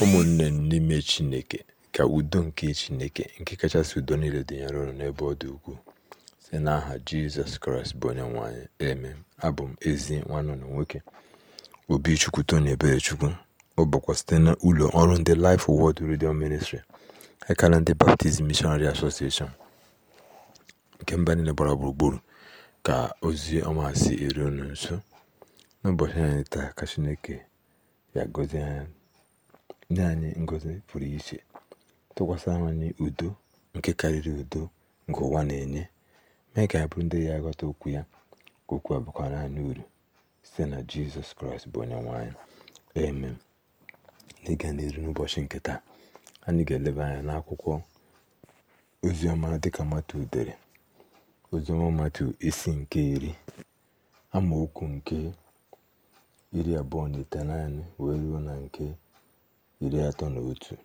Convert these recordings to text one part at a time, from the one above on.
Ụmụnne n'ime Chineke, ka udo nke Chineke nke kachasị udo niile dịnyere unu n'ebe ọ dị ukwuu, site n'aha Jizọs Kraịst bụ Onyenwe anyị. eme Abụ m ezi nwanne unu nwoke Obichukwu Tony Eberechukwu. Ọ bụkwa site na ụlọ ọrụ ndị Life Word redio Ministry ekala ndị Baptist mishonari Association nke mba niile gbara gburugburu ka ozi ọma si eri unu nso n'ụbọchị anyị taa ka Chineke ya gozie anya nye anyị ngọzi pụrụ iche tụkwasị anyị udo nke karịrị udo nke ụwa na-enye mee ka abụrụ ndị ya ghọta okwu ya ka okwu a bakwara anyị uru site na jizọs kraịst bụ onye nwe anyị amen n'ịga n'iru n'ụbọchị nke taa anyị ga-eleba anya n'akwụkwọ oziọma dịka matu dere oziọma matu isi nke iri amaokwu nke iri abụọ na ite itenaanị wee ruo na nke iri atọ na otu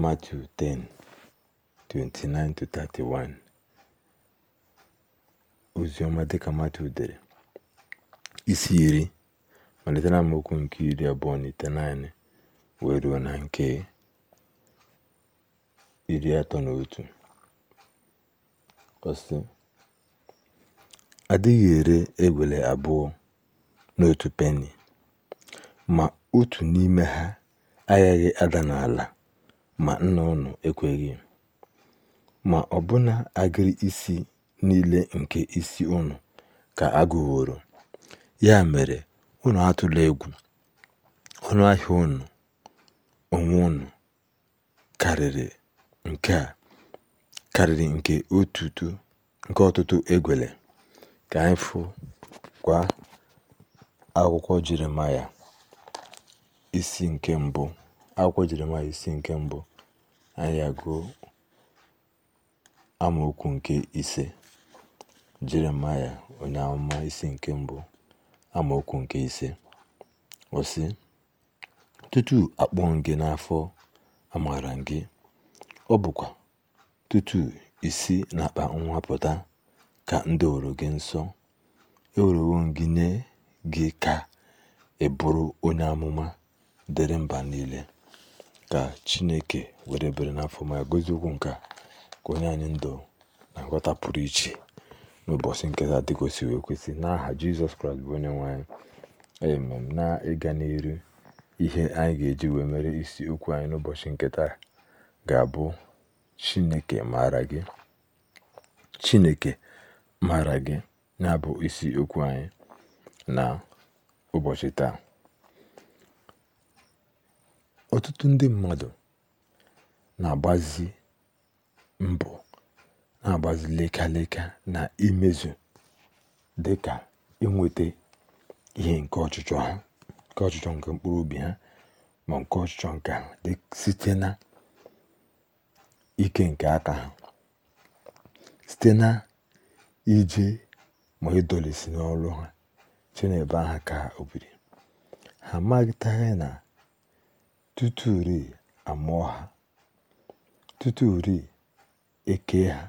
Matiu 10:29-31 oziọma dịka matthew dere isi iri malite na amaokwu nke iri abụọ na ite naanị wee ruo na nke iri atọ na otu ọsị adịghị ere egwele abụọ n'otu peni ma otu n'ime ha agaghị ada n'ala ma nna ụnụ ekweghị, ma ọbụna agịrị isi niile nke isi ụnụ ka agụworo Ya mere, ụnụ atụla egwu. Ọnụahịa ụnụ onwe ụnụ karịrị nke ọtụtụ egwele. Ka anyị kwa akwụkwọ Jeremaịa. isi nke mbụ akwụkwọ Jeremaịa isi nke mbụ anyị agụọ amaokwu nke ise Jeremaịa onye amụma isi nke mbụ amaokwu nke ise ọ tutu akpọọ gị n'afọ amaara gị ọ bụkwa tutu isi n'akpa nwa pụta ka ndị doworo gị nsọ ewurewo gị nye gị ka ị bụrụ onye amụma dịrị mba niile ka chineke were bere n'afọ ma gozie okwu nke ka onye anyị ndụ na nghọta pụrụ iche n'ụbọchị nke taa wee kwesị n'aha jizọs kraịst bụ onye nwanyị amen na ịga n'iru ihe anyị ga-eji wee mere isi okwu anyị n'ụbọchị nketa ga-abụ chineke maara gị gị na-abụ isi okwu anyị na ụbọchị taa ọtụtụ ndị mmadụ na-agbazi mbụ na-agbazi leka leka na imezu dịka inweta ihe nke ọchịchọ ha nke ọchịchọ nke mkpụrụ obi ha ma nke ọchịchọ nke ahụ site na ike nke aka ha site na ije ma ịdọlesi n'ọrụ ha chinebe aha ka obiri ha amaghịtaghị na tuturi amụọ ha tuturi eke ha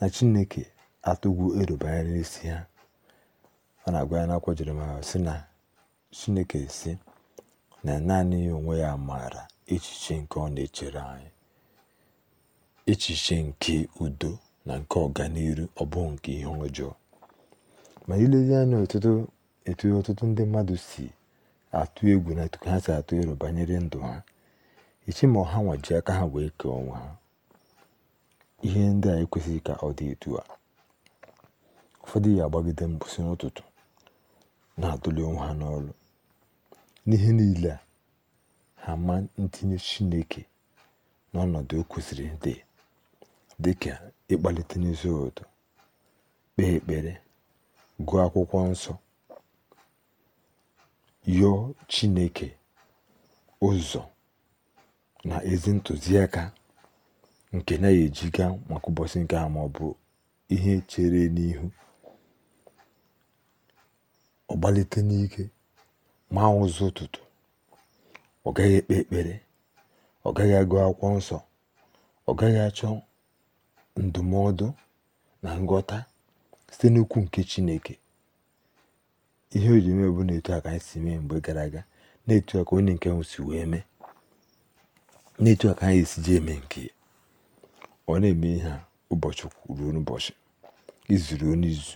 na chineke atụgwu ero n'isi ha ọ na-agwa ya n'akwụkwọ Jeremaya sị na chineke si na naanị ya onwe ya maara echiche nke ọ na-echere anyị echiche nke udo na nke ọganihu ọ bụ nke ihe ọjọọ ma ilezi anya etu ọtụtụ ndị mmadụ si atụ egwu na etu ha si atụ ero banyere ndụ ha echi ma ọha nwaji aka ha wee kee onwe ha ihe ndị a ekwesịghị ka ọ dị etu a ụfọdụ ya agbagide mgbụsị n'ụtụtụ na-atụli onwe ha n'ọrụ n'ihe niile a ha ma ntinye chineke n'ọnọdụ o kwesịrị dị dị ka ịkpalite n'ezi ụtọ kpee ekpere gụọ akwụkwọ nsọ yọọ Chineke ụzọ na ezi ntụziaka nke na ejiga maka ụbọchị nke a ma ọ bụ ihe chere n'ihu ọ gbalite n'ike ma ụzọ ụtụtụ ọ gaghị ekpe ekpere ọ gaghị agụ akwụkwọ nsọ ọ gaghị achọ ndụmọdụ na ngọta site n'ukwu nke Chineke ihe o ji bụ na etu a ka anyị si mee mgbe gara aga na-etu a ka onye nke ahụ si wee mee na-etu a ka anyị esi ji eme nke ọ na-eme ihe a ụbọchị ruo n'ụbọchị izu ruo n'izu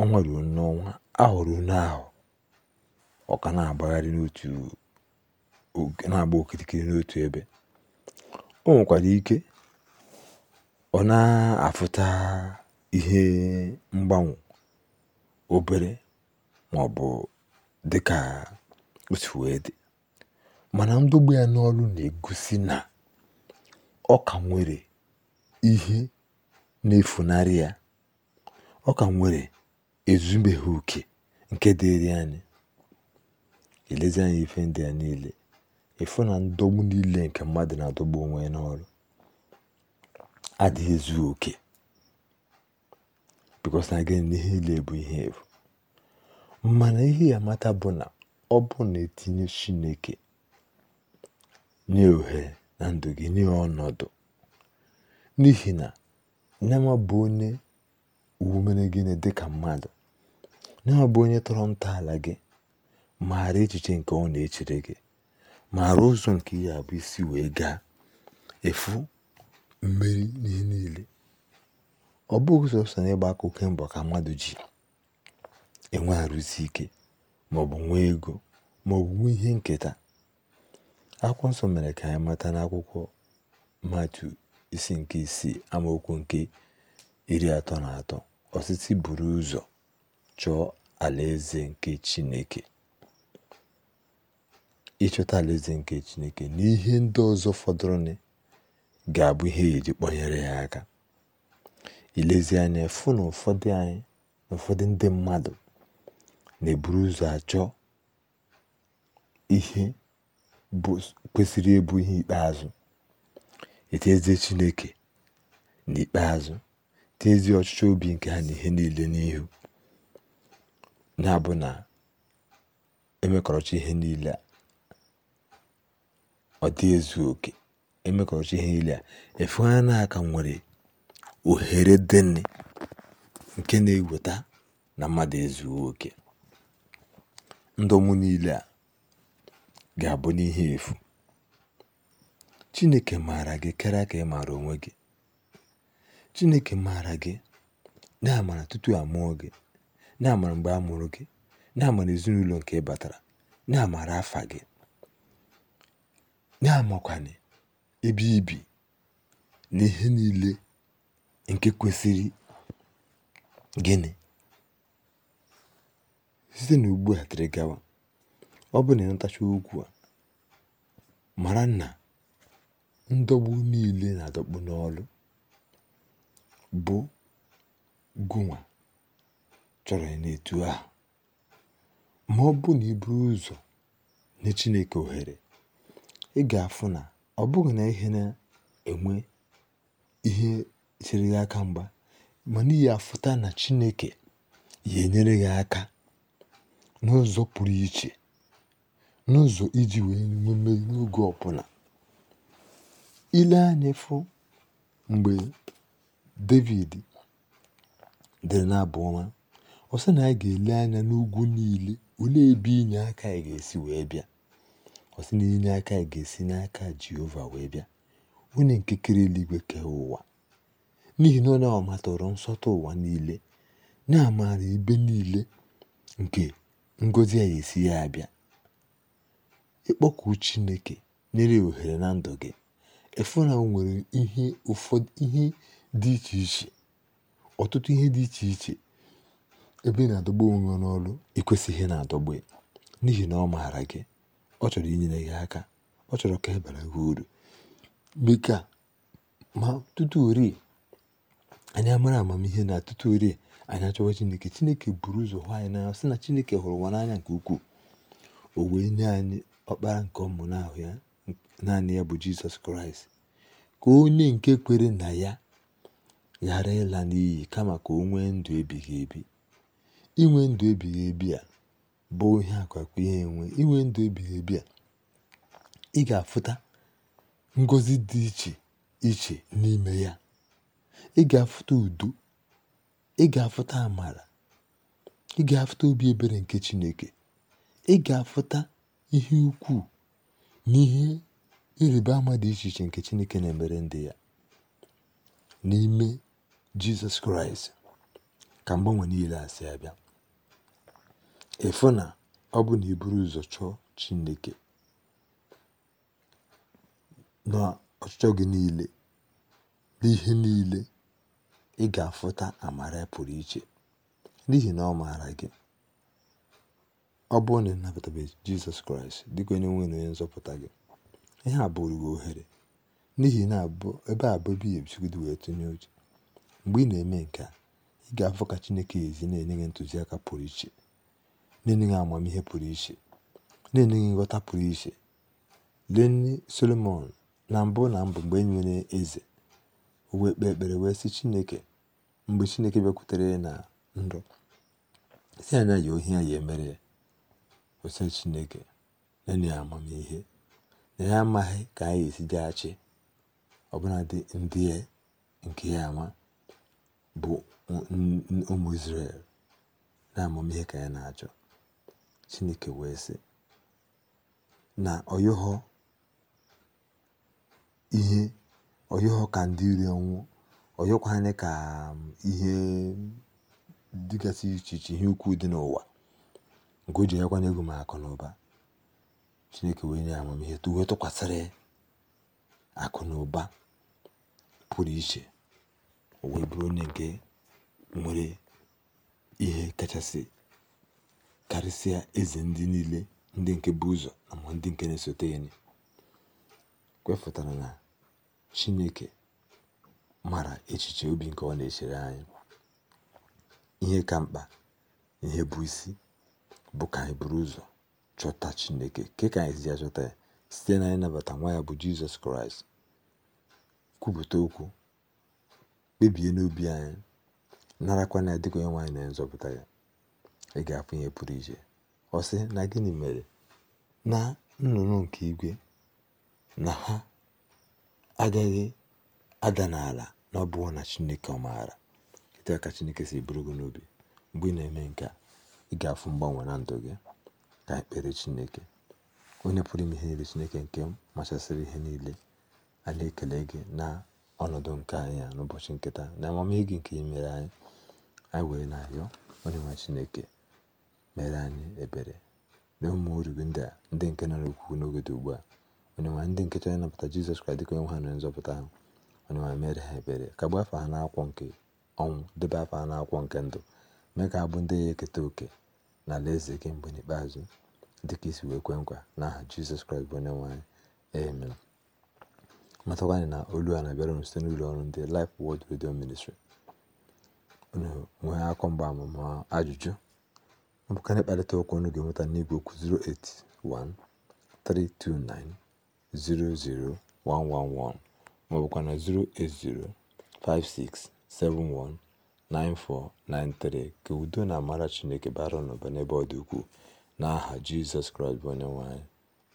ọnwa ruo n'ọnwa ahụ n'ahụ ọ ka na-agbagharị n'otu na-agba okirikiri n'otu ebe o nwekwara ike ọ na-afụta ihe mgbanwe obere màọ̀bụ̀ bụ o sì wee dị mana ndogbu ya n'ọrụ na-egosi na ọ ka nwere ihe na-efunarị ya ọ ka nwere ezumeghị oke nke dịrị anyị elezi anya ife ndị a niile ịfụ na ndọgbu niile nke mmadụ na-adọgbu onwe ya n'ọrụ adịghị ezu oke because na gịnị na ihe niile bụ ihe efu mana ihe ya mata bụ na ọ bụ na etinye Chineke nye ohere na ndụ gị nye ọnọdụ n'ihi na nyama bụ onye mere gịnị dị ka mmadụ nyama bụ onye tọrọ ntọala gị maara echiche nke ọ na-echere gị maara ụzọ nke ya bụ isi wee gaa efu mmeri n'ihe niile ọ bụghị sọsọ na ịgba akụkọ mbọ ka mmadụ ji enwe arụsi ike maọbụ nwee ego maọbụ nwee ihe nketa akwụkwọ nsọ mere ka anyị mata n'akwụkwọ matu isi nke isii amaokwu nke iri atọ na atọ osisi buru ụzọ chọọ alaeze nke chineke ịchọta alaeze nke chineke na ihe ndị ọzọ fọdụrụnụ ga-abụ ihe eji ya aka ilezi anya fụ na ụfọdụ anyị na ụfọdụ ndị mmadụ na-eburu ụzọ achọ ihe kwesịrị ịbụ ihe ikpeazụ etezie Chineke n'ikpeazụ tezi ọchịchọ obi nke ha na ihe niile n'ihu na-abụ na emekọrọcha ihe niile a ọ dị ezu oke emekọrọcha ihe niile a efu ha nwere ohere deni nke na-eweta na mmadụ ezu oke ndọnwụ niile a ga-abụ n'ihe efu Chineke maara gị karịa ka ị maara onwe gị Chineke maara gị na-amara tutu a mụọ gị na-amara mgbe a mụrụ gị na-amara ezinụlọ nke ị batara na-amara afa gị na-amakwana ebe ibi na ihe niile nke kwesịrị gịnị Site n'ugbu a dịrị gawa, ọ bụrụ na ịnatacha okwu a, mara na ndọgbu niile na-adọkpụ n'ọrụ bụ gụnwa chọrọ ya n'etu ahụ. Ma ọ bụ na ụzọ nye Chineke ohere, ị ga-afụ na ọ bụghị na ihe na-enwe ihe chere gị aka mgba, ma n'ihi afụta na Chineke ya enyere gị aka n'ụzọ pụrụ iche n'ụzọ iji wèe mume n'oge ọbụla Ile anya fụ mgbe David dere n'abụ ọma, ọ sị na anyị ga-ele anya n'ugwu niile olee ebe inye aka anyị ga-esi wee bịa. Ọ sị na inye aka anyị ga-esi n'aka Jehova wee bịa onye nke kere eluigwe kee ụwa n'ihi na ọ na ọ nsọtụ ụwa niile na-amara ebe niile nke ngozi a ga-esi ya abịa ịkpọku chineke nyere ohere na ndụ gị efu na nwere ihe ụfọdụ ihe dị iche iche ọtụtụ ihe dị iche iche ebe na-adọgbu onwe n'ọrụ ịkwesịghị na-adọgbu n'ihi na ọ maara gị ọ chọrọ inyere gị aka ọ chọrọ ka ị e bara gị uru bika ma tutu ori anyị mara amamihe na tutu orie anyị achọwa Chineke Chineke buru ụzọ hụ anyị n'anya sị na Chineke hụrụ nwa n'anya nke ukwuu o wee nye anyị ọkpara nke ọmụnahụ ya naanị ya bụ Jizọs Kraịst ka onye nke kwere na ya ghara ịla n'iyi kama ka o nwee ndụ ebighị ebi inwe ndụ ebighị ebi a bụ ihe akwakwa ihe enwe inwe ndụ ebighị ebi a ị ga-afụta ngọzi dị iche iche n'ime ya ị ga-afụta udo ị ga-afụta amara ị ga-afụta obi ebere nke Chineke ị ga-afụta ihe ukwuu n'ihe ihe ịrịba ama dị iche iche nke Chineke na-emere ndị ya n'ime Jizọs Kraịst ka mgbanwe niile asị abịa ịfụ na ọ bụ na iburu ụzọ chọọ Chineke na ọchịchọ gị niile n'ihe niile ị ga-afụta amara pụrụ iche n'ihi na ọ maara gị ọ bụrụ na ị nabatabeghị Jizọs Kraịst dịka onye nwe na onye nzọpụta gị ihe a bụrụ gị ohere n'ihi na ebe a bụ ebe ebisigodi wee tụnye uche mgbe ị na-eme nke a ị ga-afụ ka Chineke ezi na-enye gị ntụziaka pụrụ iche na-enye gị amamihe pụrụ iche na-enye gị nghọta pụrụ iche lee Solomọn na mbụ na mbụ mgbe ị e nwere eze o wee kpee ekpere wee sị Chineke mgbe Chineke bịakwutere ya na ndụ si anya ya ohi ya ya emere ya Chineke na ya amamihe na ya amaghị ka anyị esi jeghachi dị ndị nke ya ama bụ ụmụ Izrel na amamihe ka ya na-achọ Chineke wee sị na ọ ihe ọyọhọ ka ndị iro oyi ọyọkwanị ka um, ihe dịgasị iche iche ihe ukwu dị n'ụwa nke o ji ego m akụ na ụba chineke wee nye amamihe wee tụkwasịrị akụ na ụba pụrụ iche o wee bụrụ onye nke nwere ihe kachasị karịsịa eze ndị niile ndị nke bụ ụzọ na ndị nke na-esote ya kwefụtara na Chineke mara echiche obi nke ọ na-echere anyị ihe ka mkpa ihe bụ isi bụ ka anyị buru ụzọ chọta Chineke ke ka anyị si ya chọta ya site na ịnabata nwa ya bụ Jizọs Kraịst kwupụta okwu kpebie n'obi anyị narakwa ya dịka onye nwe anyị na nzọpụta ya ị ga-afụ ihe pụrụ iche ọ sị na gịnị mere na nnụnụ nke igwe na ha agaghị ada n'ala na ọ bụghị na Chineke ọ maara etu aka ka Chineke si bụrụ gị n'obi mgbe ị na-eme nke a ị ga-afụ mgbanwe na ndụ gị ka ekpere Chineke onye pụrụ ime ihe niile Chineke nke machasịrị ihe niile a na-ekele gị na ọnọdụ nke anyị a n'ụbọchị nketa na amamihe gị nke imere anyị anyị were na-arịọ onye nwe Chineke mere anyị ebere na ụmụ oriri ndị a ndị nke nọ n'okwu n'oge dị ugbu a onyenwe anyị ndị nke chọrọ ịnapụta jizọs kraịst dịka onye nwe ha na nzọpụta ha onye mere ha ebere ka gba afọ ha n'akwụkwọ nke ọnwụ debe afọ ha n'akwụkwọ nke ndụ mee ka ha bụ ndị ya eketa oke na eze gị mgbe n'ikpeazụ dịka isi wee kwe nkwa n'aha jizọs kraịst bụ onye nwe anyị amen na olu a na-abịara unu site n'ụlọ ọrụ ndị Life Word Radio Ministry unu nwee akọ mgbaama amụma ajụjụ ọ bụkarị mkparịta ụka unu ga-enweta n'igwe okwu 081 00111 maọbụkwa na 56719493 Ka udo na amara Chineke bara ụnụba n'ebe ọ dị ukwuu n'aha Jizọs Kraịst bụ onye nwanyị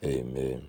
Amen.